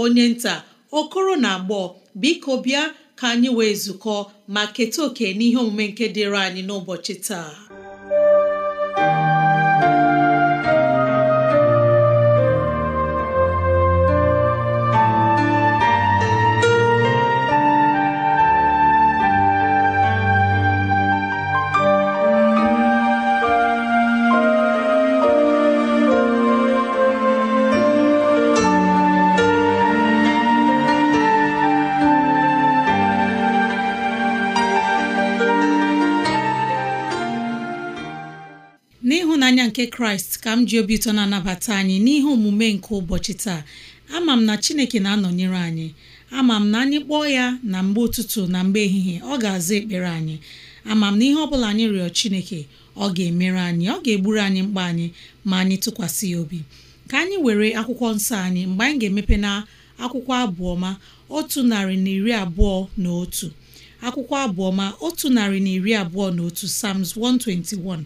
onye nta okoro na agbọọ biko bịa ka anyị wee zukọọ ma keta oke n'ihe omume nke dịịrị anyị n'ụbọchị taa kraịst ka m ji obi ụtọ na-anabata anyị n'ihe omume nke ụbọchị taa ama m na chineke na-anọnyere anyị ama m na anyị kpọọ ya na mgbe ụtụtụ na mgbe ehihie ọ ga-aza ekpere anyị ama m na ihe ọ bụla anyị rịọ chineke ọ ga-emere anyị ọ ga-egburu anyị mkpa anyị ma anyị tụkwasị ya obi ka anyị were akwụkwọ nsọ anyị mgbe anyị ga-emepe na akwụkwọ abụọma otu narị na iri abụọ na otu akwụkwọ abụọma otu narị na iri abụọ na otu sams 121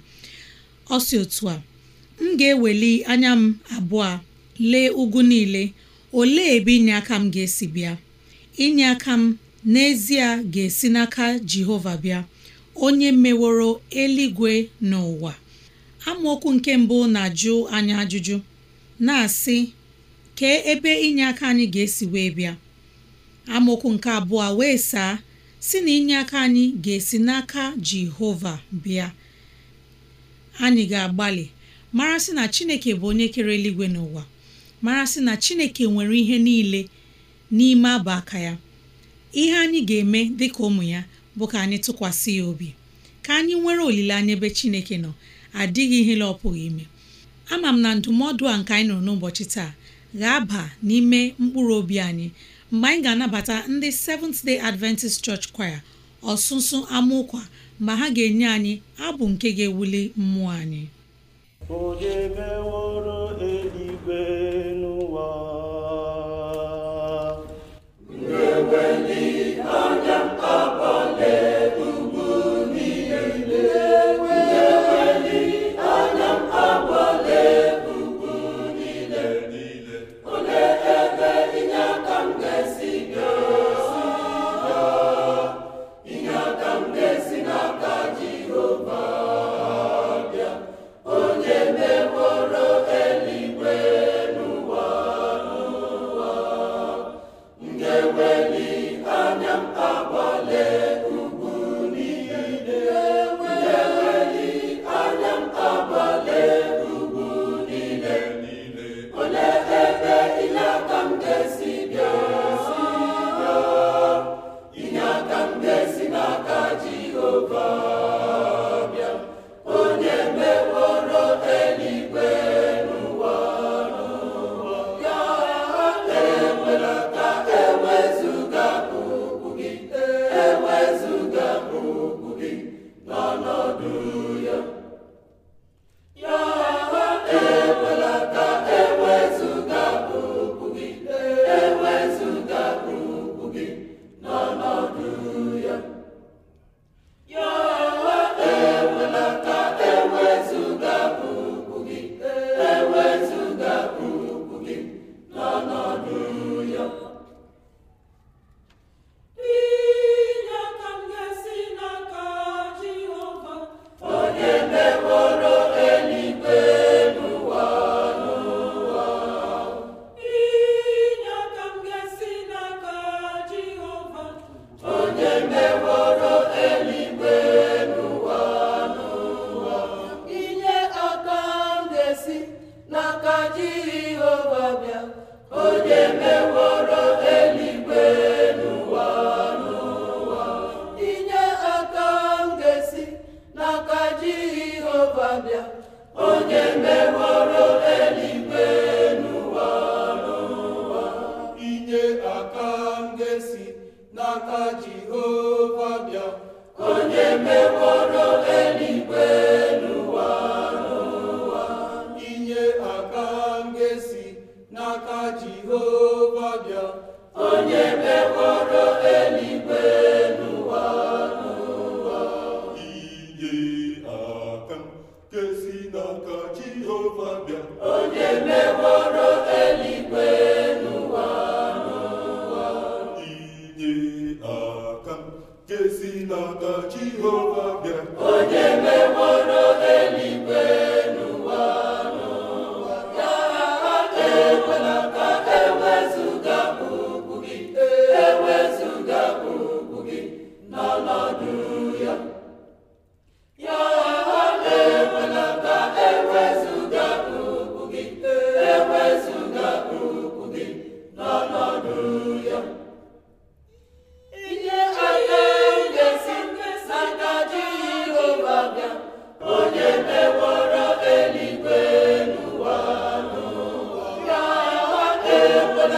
ọ si otu a m ga-eweli anya m abụọ lee ugwu niile olee ebe inye aka m ga-esi bịa inye aka m n'ezie ga-esi n'aka Jehova bịa onye meworo eluigwe n'ụwa amaokwu nke mbụ na-ajụ anya ajụjụ na-asị kee ebe inye aka anyị ga-esi wee bịa amaokwu nke abụọ wee saa si na inye aka anyị ga-esi n'aka Jehova bịa anyị ga-agbalị mara sị na chineke bụ onye kere eluigwe n'ụwa mara sị na chineke nwere ihe niile n'ime abụ aka ya ihe anyị ga-eme dịka ụmụ ya bụ ka anyị tụkwasị ya obi ka anyị nwere olileanya ebe chineke nọ adịghị ihe la ọ pụghị ime ama m na ndụmọdụ a nke anyị nọ n'ụbọchị taa ga-aba n'ime mkpụrụ obi anyị mgbe anyị ga-anabata ndị Seventh Day Adventist Church Choir ọsụsụ amaụkwa ma ha ga-enye anyị abụ nke ga-ewuli mmụọ anyị Onye meworo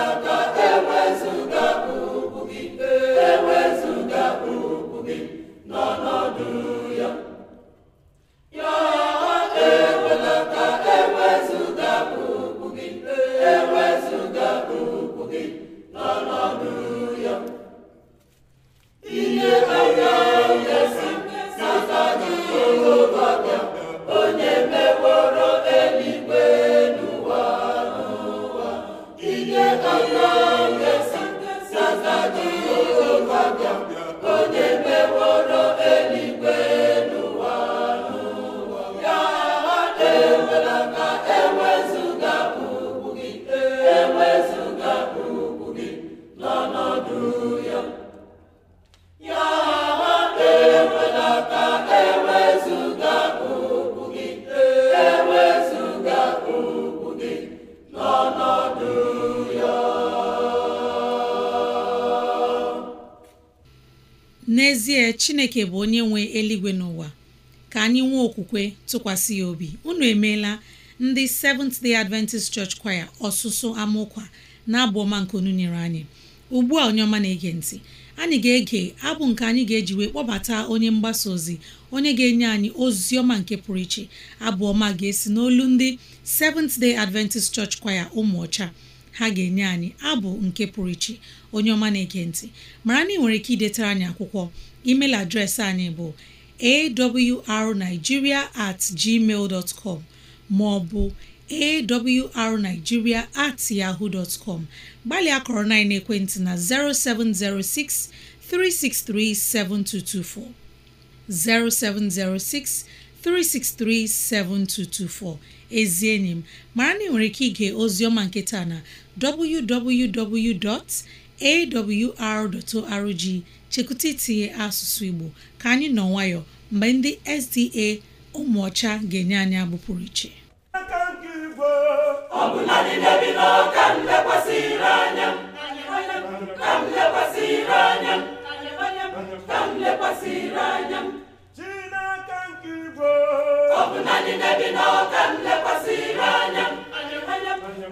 ọnọdụ ka chineke bụ onye nwe eluigwe n'ụwa ka anyị nwee okwukwe tụkwasị ya obi unu emeela ndị Seventh Day Adventist Church Choir ọsụsụ amaụkwa na abụ ọma nke unu nyere anyị ugbu a onye na-ege ntị anyị ga-ege abụ nke anyị ga-eji wee kpọbata onye mgbasa ozi onye ga-enye anyị ozi ọma nke pụrụ iche abụ ọma ga-esi n'olu ndị Seventh Day Adventist Church Choir ụmụọcha ha ga-enye anyị abụ nke pụrụ iche onye ọma na-ege ntị mara na ị nwere ike idetara anyị akwụkwọ email adreesị anyị bụ awrnigeria at gmail dot com maọbụ awrnigeria at yahoo dot com gbalịa kọrọ na ekwentị na 0706 363 7224 0706 363-7224 ezi enyi m mara na ị nwere ike ige oziọma nketa na www.awr.org chekwuta itinye asụsụ Igbo ka anyị nọ nwayọ mgbe ndị SDA ụmụọcha ga-enye anyị abụ pụrụ iche ọ bụ na ndị na-ebi n'ọka m lekwasịrị anya m,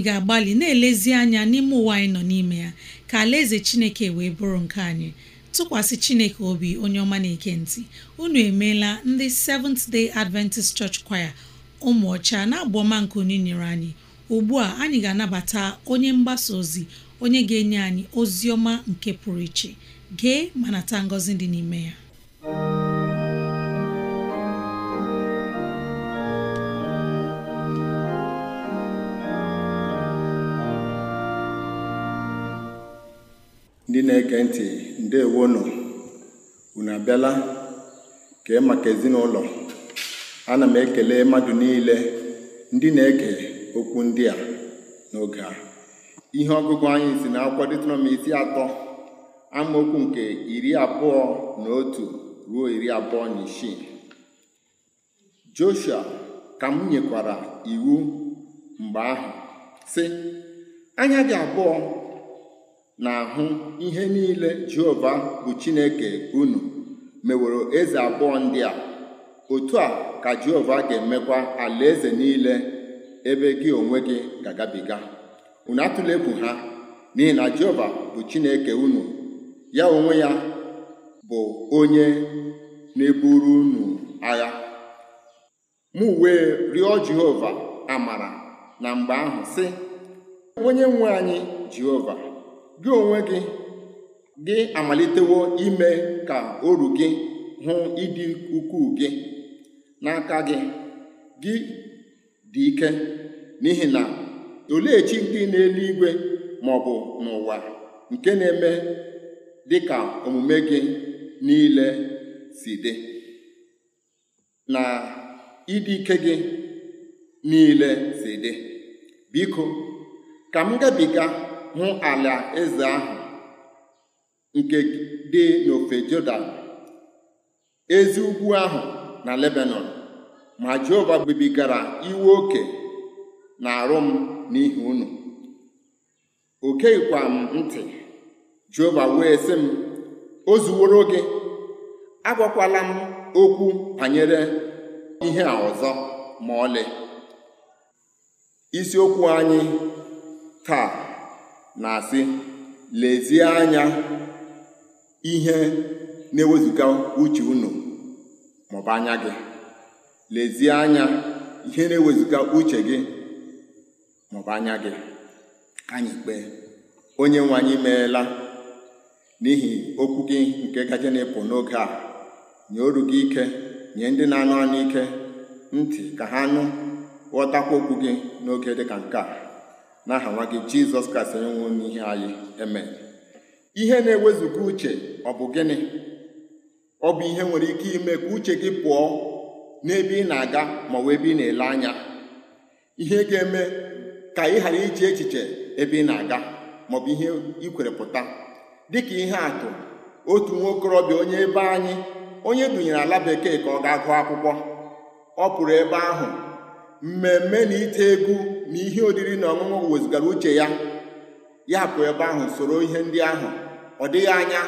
ga-agbalị na-elezi anya n'ime ụwa anyị nọ n'ime ya ka alaeze chineke wee bụrụ nke anyị tụkwasị chineke obi onye ọma na-eke ntị unu emeela ndị Seventh Day Adventist Church Choir ụmụ ọcha na ọma nke onye nyere anyị ugbu a anyị ga-anabata onye mgbasa ozi onye ga-enye anyị ozi ọma nke pụrụ iche gee ma nata ngọzi dị n'ime ya na-ege ntị ndewonụ unu abịala kee maka ezinụlọ ana m ekele mmadụ niile ndị na eke okwu ndị a n'oge a ihe ọgụgụ anyị si na akwụkwọ detrom isi atọ amaokwu nke iri abụọ na otu ruo iri abụọ na isii Joshua ka m nyekwara iwu mgbe ahụ sị anya gị abụọ na-ahụ ihe niile Jehova bụ Chineke unu meworo eze abụọ ndị a otu a ka Jehova ga-emekwa alaeze niile ebe gị onwe gị ga-agabiga unu atụla egwu ha n'ihi na Jehova bụ Chineke unu ya onwe ya bụ onye na-eburu unu agha mụ wee rịọ Jehova amara na mgbe ahụ sị onye nwe anyị Jehova gị onwe gị gị amalitewo ime ka oru gị hụ ịdị ukwuu gị n'aka gị gị dị ike n'ihi na olechi ndị n'eluigwe ma ọ bụ n'ụwa nke na-eme dị ka omume gị niile si dị na ịdị ike gị niile si dị biko ka m gabiga hụ ala eze ahụ nke dị n'ofe Jọdan ezi ugwu ahụ na Lebanon ma Jehova bibigara iwe oke na-arụ m n'ihi unu o geghịkwa m ntị Jehova wee sị m o zuworo gị agwakwala m okwu banyere ihe a ọzọ ma ọlị isiokwu anyị taa na-asị lezie anya ihe na ewezuga uche unu maọbụ anya gị lezie anya ihe na ewezuga uche gị maọbụ anya gị anyị kpee onye nwe anyị meela n'ihi okwu gị nke gaje na epụ n'oge a nye oru gị ike nye ndị na-anụ anụ ike ntị ka ha nụ ghọtakwa okwu gị n'oge dịka nke a n'aha nwa gị jizọs kraịst onye nwụrụ n'ihe anyị eme ihe na-ewezuga uche ọ bụ gịnị ọ bụ ihe nwere ike ime ka uche gị pụọ n'ebe ị na-aga ma ọ bụ ebe ị na-ele anya ihe ga-eme ka ị ghara iche echiche ebe ị na-aga ma ọ bụ ihe ị kwere pụta dịka ihe atụ otu nwa okorobịa onye ebe anyị onye dunyere ala bekee ka ọ gaa gụọ akwụkwọ ọ pụrụ ebe ahụ mmemme na ite egwu na ihe oriri na ọṅụṅụ wezugara uche ya ya pụ ebe ahụ soro ihe ndị ahụ ọ dịghị anya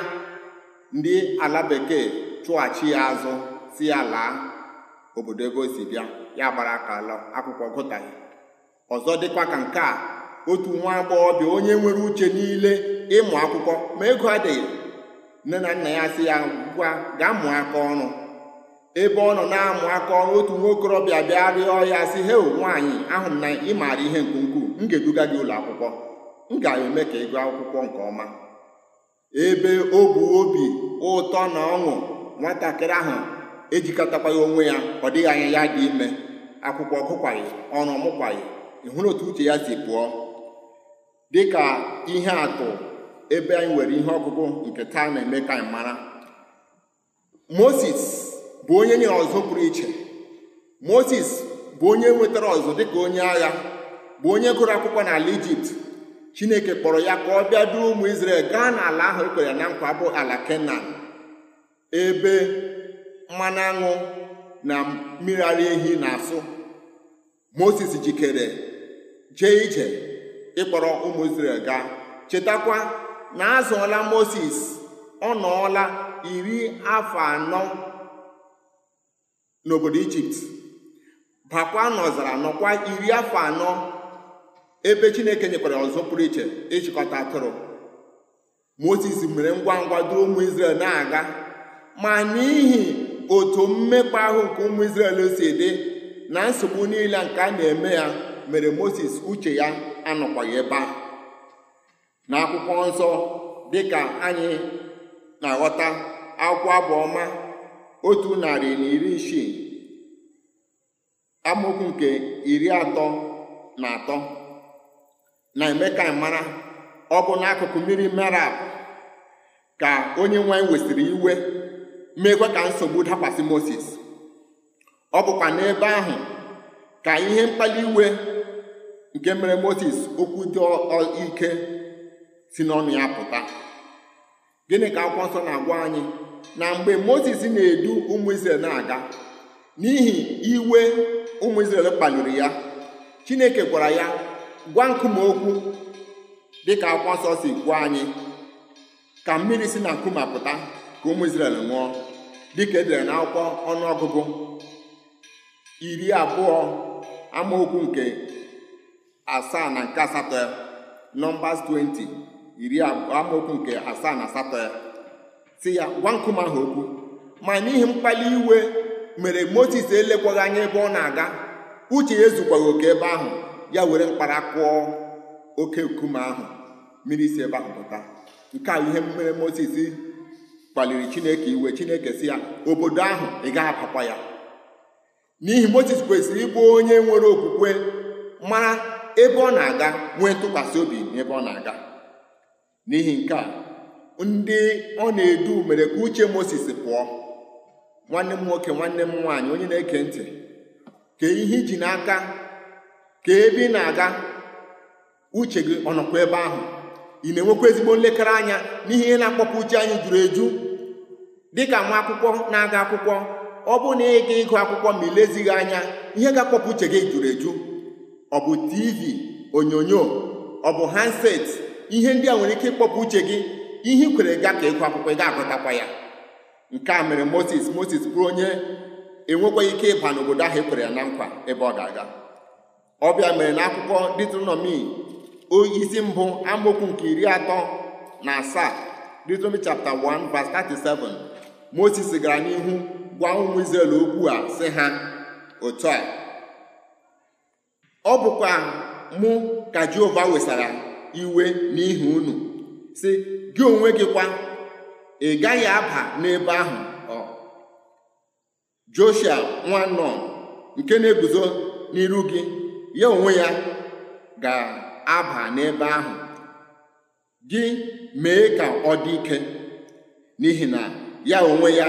ndị ala bekee chụghachi ya azụ si ya laa obodo ebe o si bịa ya gbara aka ala akwụkwọ gụtaghị ọzọ dịkwa ka nke a otu nwa agbọghọbịa onye nwere uche niile ịmụ akwụkwọ ma ego adịghị nne na nna ya si ya ngwa gaa mụọ aka ọrụ ebe ọ nọ na-amụ aka ọrụ otu nwokorobịa bịa rịọ ya sị he nwaanyị ahụ m na ị maara ihe nke ukwuu m ga-eduga gị ụlọ akwụkwọ m ga-eme ka ị akwụkwọ nke ọma ebe o bụ obi ụtọ na ọṅụ nwatakịrị ahụ ya onwe ya ọ dịghị anya ya dị ime akwụkwọ gụkwaghị ọrụ ọmụkwaghị ị hụrụ otu uche ya si pụọ dịka ihe atụ ebe anyị nwere ihe ọgụgụ nke taa na-eme ka anyị mara moses bụ onye nye ọzọ pụrụ iche moses bụ onye nwetara ọzọ dịka onye agha bụ onye gụrụ akwụkwọ n'ala ijipt chineke kpọrọ ya ka ọ bịa duo ụmụ israel gaa n'ala ahụ ekwere na nkwa bụ ala kenan ebe mmanụ aṅụ na mmiri ara ehi na-asụ moses jikere jee ije ịkpọrọ ụmụ israel gaa chetakwa na azụọla moses ọ nọọla iri afọ anọ n'obodo ijipt bakwa n'ọzara nọkwa iri afọ anọ ebe chineke nyekwara ọzọ pụrụ iche ịchịkọta atụrụ moses mere ngwa ngwa duo ụmụ israel na-aga ma n'ihi otu mmekpa ahụ nke ụmụ israel si dị na nsogbu niile nke a na-eme ya mere moses uche ya anọkwaghị ebe a na akwụkwọ nsọ dịka anyị na-aghọta akwụkwọ abụ otu narị na iri isii amokwu nke iri atọ na atọ na emeka ka mara ọ bụ n'akụkụ mmiri merab ka onye nwanyị wesịrị iwe meekwa ka nsogbu dakwasị Moses ọ bụkwa n'ebe ahụ ka ihe mkpali iwe nke mere Moses okwu dị ike si n'ọnụ ya pụta gịnị ka akwụkwọ nsọ na-agwa anyị na mgbe moses na-edu ụmụ israel na-aga n'ihi iwe ụmụ israel kpaliri ya chineke gwara ya gwa nkume okwu dịka akwa nsọ si kwuo anyị ka mmiri si na nkume apụta ka ụmụ israel ṅụọ dịka edere na akwụkwọ ọnụọgụgụ iri abụọ amaokwu nke asaa na nke asatọ ya nọmbas 20 iri amaokwu nke asaa na asatọ ya si ya gwa nkume ahụ okwu ma n'ihi mkpali iwe mere moses elekwaghị anya ebe ọ na-aga uche ya ezukwaghị oke ebe ahụ ya were mkpara kụọ oke nkume ahụ mmiri si ebe ahụ pụta nke a ihe mere moses kpaliri chineke iwe chineke si ya obodo ahụ ị gaghị apakwa ya n'ihi moses kwesịrị ịbụ onye nwere okwukwe mara ebe ọ na-aga nwee ntụkwasị obi n'ebe ọ na-aga n'ihi nke a ndị ọ na-edu mere ka uche Moses pụọ nwanne m nwoke nwanne m nwaanyị onye na-eke ntị ka ihe iji n'aka ka ebe ị na-aga uche gị ọ nọkwa ebe ahụ ị na-enwekwa ezigbo nlekere anya n'ihe ihe na-akpọpụ uche anyị juru eju dịka nwa akwụkwọ na-aga akwụkwọ ọ bụrụ na ịga ịgụ akwụkwọ ma ilezighị anya ihe ga-akpọpụ uche gị juru eju ọ bụ tv onyonyo ọ bụ handset ihe ndị a nwere ike ịkpọpụ uche gị ihe kwere ga ka ịgụ akwụkwọ ị ga-agụtakwa ya nke a mere moses moses bụrụ onye enwekwaghị ike ịba n'obodo ahụ ekwere ya na nkwa ebe ọ ga-aga ọbịa mere na akwụkwọ detronọmi isi mbụ amokwu nke iri atọ na asaa detronọmi chapter 1 verse 37 moses gara n'ihu gwa ụmụ Izrel okwu a sị ha otu a ọ bụkwa mụ ka jehova wesara iwe n'ihi unu si gị onwe gị kwa ị gaghị aba n'ebe ahụ Joshua nwa nnọọ nke na-eguzo n'iru gị ya onwe ya ga-aba n'ebe ahụ gị mee ka ọ dị ike n'ihi na ya onwe ya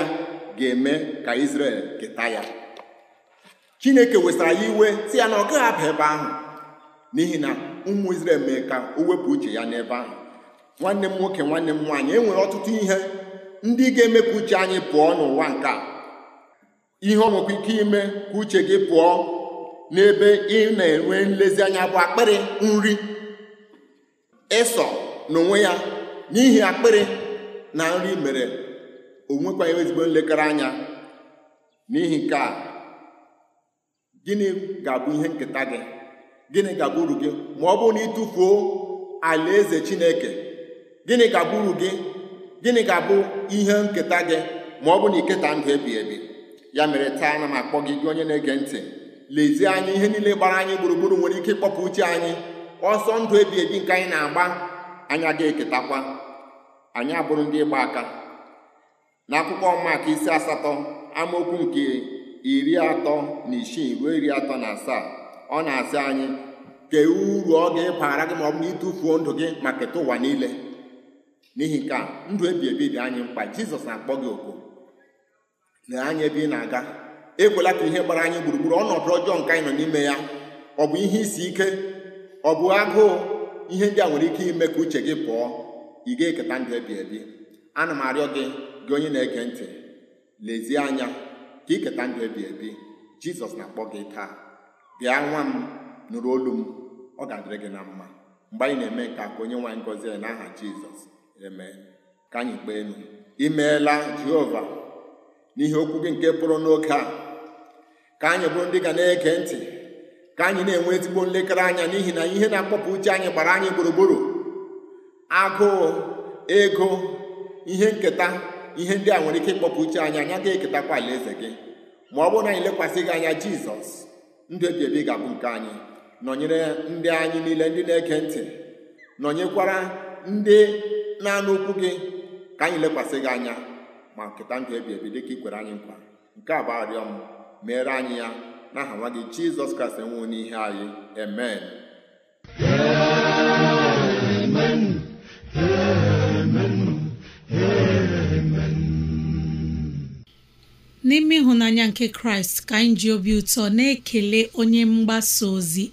ga-eme ka israel keta ya Chineke wesara ya iwe si ya na ọ gaghị aba ebe ahụ n'ihi na ụmụ israel mee ka o wepụ uche ya n'ebe ahụ nwanne m nwoke nwanne m nwaanyị enwere ọtụtụ ihe ndị ga-eme ka uche anyị pụọ n'ụwa nke a ihe ọ nwekwa ike ime ka uche gị pụọ n'ebe ị na-enwe nlezianya bụ akpịrị nri ịsọ n'onwe ya n'ihi akpịrị na nri mere o nwekwaghị ezigbo nlekere anya n'ihi nke a gịnị ga-abụ ihe nketa gị gịnị ga-abụ uru gị ma ọ bụrụ na ị tụfuo alaeze Chineke gịnị ga-abụ gị gịnị ka bụ ihe nketa gị ma ọ bụ na iketa ndụ ebi ebi ya mere taa na m akpọ gị gị onye na-ege ntị lezie anya ihe niile gbara anyị gburugburu nwere ike ịkpọpụ uche anyị ọsọ ndụ ebi ebi nke anyị na-agba anya gị eketakwa anyị abụrụ ndị ịgba aka n'akwụkwọ maka isi asatọ amaokwu nke iri atọ na isii ruo iri atọ na asaa ọ na-asị anyị kee uru ọ ga-ebara gị ma ọ bụ na ịtụfuo ndụ gị ma keta ụwa niile n'ihi nke a ndụ ebi ebi dị anyị mkpa jizọs na-akpọ gị oku na anya ebe ị na-aga ekwela ka ihe gbara anyị gburugburu ọnọdụ ọjọọ nke anyị nọ n'ime ya ọ bụ ihe isi ike ọ bụ agụụ ihe ndị a nwere ike ime ka uche gị pụọ ị ga-eketa ndụ ebi ebi ana m arịọ gị gị onye na-ege ntị lezie anya ka iketa ndụ ebi ebi jizọs na-akpọ gị taa bịa nwa m nụrụ olu m ọ ga-adịrị gị na mma mgbe anyị na-eme nke a ka onye nwaanyị gọzie n'aha jizọs eme ka anyị kpee imeela jehova n'ihe okwu gị nke pụrụ n'oge a ka anyị bụrụ ndị ga na-ege ntị ka anyị na-enwe ezigbo nlekere anya n'ihi na ihe na-akpọpụ uche anyị gbara anyị gburugburu agụụ ego ihe nketa ihe ndị a nwere ike ịkpọpụ uche anyị anya ga-eketakwa alaeze gị ma ọ bụrụ na anyị lekwasị gị anya jizọs ndụ ebi ebi ga-abụ nke anyị nọnyere ndị anyị niile ndị na-ege ntị nọnyekwara ndị naanị okwu gị ka anyị lekwasị gị anya ma nketa ndụ ebi ebi dịka ị kwere anyị nkwa nke a bụ arịọ m meere anyị ya aha nwa gị jizọs kraịst enwewo n'ihe anyị amen n'ime ịhụnanya nke kraịst ka anyị ji obi ụtọ na-ekele onye mgbasa ozi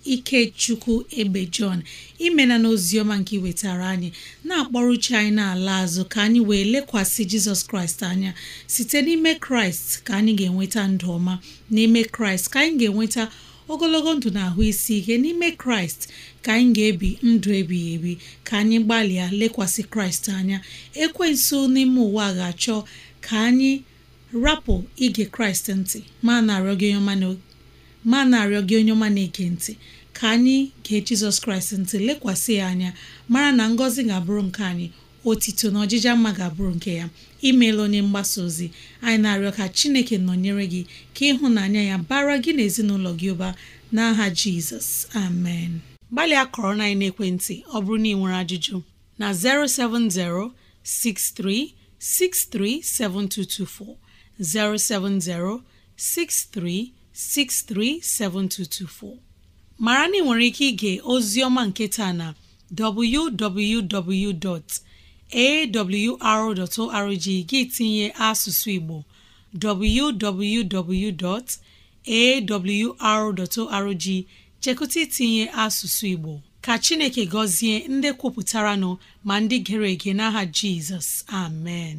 chukwu ebe jọn imena na oziọma nke iwetara anyị na-akpọrọ uche anyị n'ala azụ ka anyị wee lekwasị jizọs kraịst anya site n'ime kraịst ka anyị ga-enweta ndụ ọma n'ime kraịst ka anyị ga-enweta ogologo ndụ na ahụ isi ihe n'ime kraịst ka anyị ga-ebi ndụ ebighị ebi ka anyị gbalịa lekwasị kraịst anya ekwensu n'ime ụwa ga-achọ ka anyị rapụ ige kraịst ntị ma na-arịọ gị onye ọma na-ege ntị ka anyị gee jizọs kraịst ntị lekwasị ya anya mara na ngọzi ga-abụrụ nke anyị otito na ọjịja mma ga-abụrụ nke ya imeela onye mgbasa ozi anyị na-arịọ ka chineke nọnyere gị ka ịhụnanya ya bara gị na ezinụlọ gị ụba n'aha jizọs amen gbalịa kọrọ na naekwentị ọ bụrụ na ị nwere ajụjụ na 070 6363 7224 070 mara na ị nwere ike ige ozioma nketa na www.awr.org gị tinye asụsụ Igbo www.awr.org chekụta itinye asụsụ Igbo ka Chineke gọzie ndị kwupụtara nọ ma ndị gere ege n'aha Jizọs amen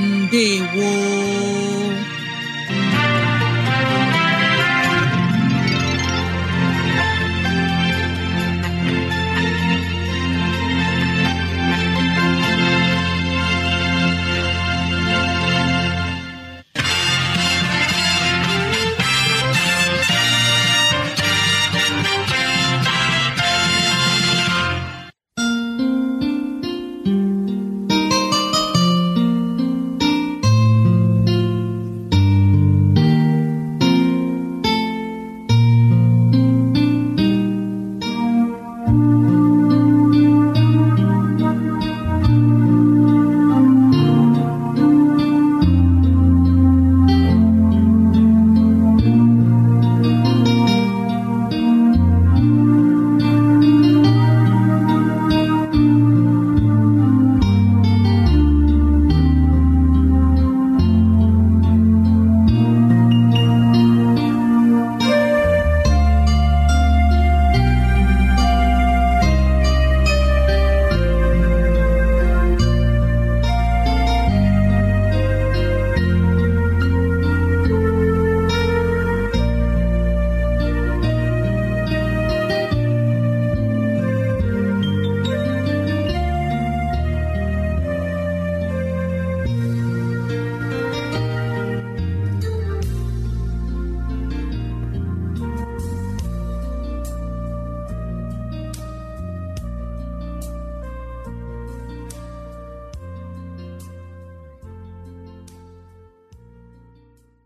ndewo